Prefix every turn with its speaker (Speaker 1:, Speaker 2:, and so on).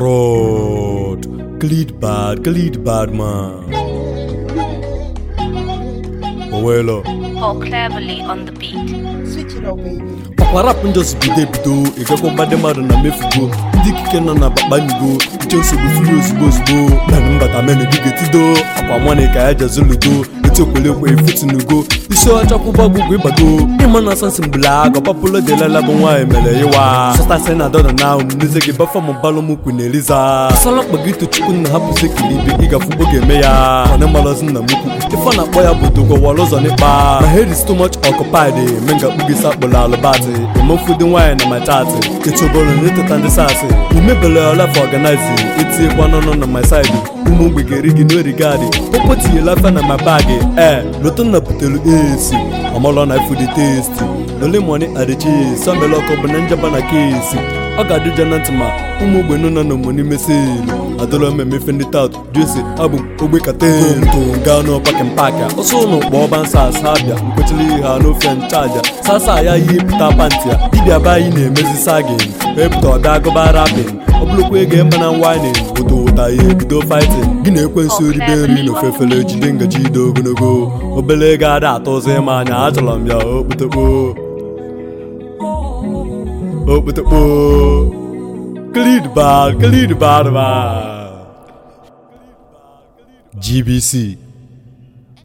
Speaker 1: Rot, Gliedbad, Gliedbad, man. Owelo.
Speaker 2: Oh, cleverly on the beat. Switch it up, baby.
Speaker 1: Papa rap bido ebido ịgakwa mmadụ mmadụ na mefugo ndị ikike nọ na bakpanigo uche nsogbu furu ozugbo ozugbo na mbata menedigo tido akwa nwane ka ya jezu ludo ite okwelekwe efutunugo isi ọcha kwụba ọgwụgwụ ịgbago ịma na asọsị mgbula aga papụlo delela bụ nwaanyị mere ịwa sọtasị na dọla na ahụ n'eze gị bafọm balụmụkwu na eliza asala mkpa gị tochukwu eme ya mana nna akpọ ya bụ dogowara ụzọ n'ịkpa ma hedis too much occupied ngakpu gị emefu dị nwaanyị na na eteta ndị eh. n'ọnụ na my side ụmụ gị n'origadi ee lotanna butere esi ọmalọ na fudi testi olemoni adechi sọmela ọkọ bụ na njaba na kesi ọ ga-adị ja na ntị ma ụmụ ogbenye nọ na omoni meselu adọrọ m emefe ndị tat jesi abụ ogbe kateto gaa n'ọpakin paaki ọsọ ụlọ kpọọ ọba nsa asa abịa mkwechiri ha n'ofe nchaja sasa ya ihe pụta pantị a dibịa be anyị na-emezi sagin pụta ọbịa agụba rapin ọ bụrụkwa ego ịma na odo pụta ya ebido fighting gị na-ekwensu oh, ribe nri n'ofefere ofefele jide ngaji ide ogologo obele ego ada atọ ụzọ ịma anya achọrọ m ya okpotokpo okpotokpo GBC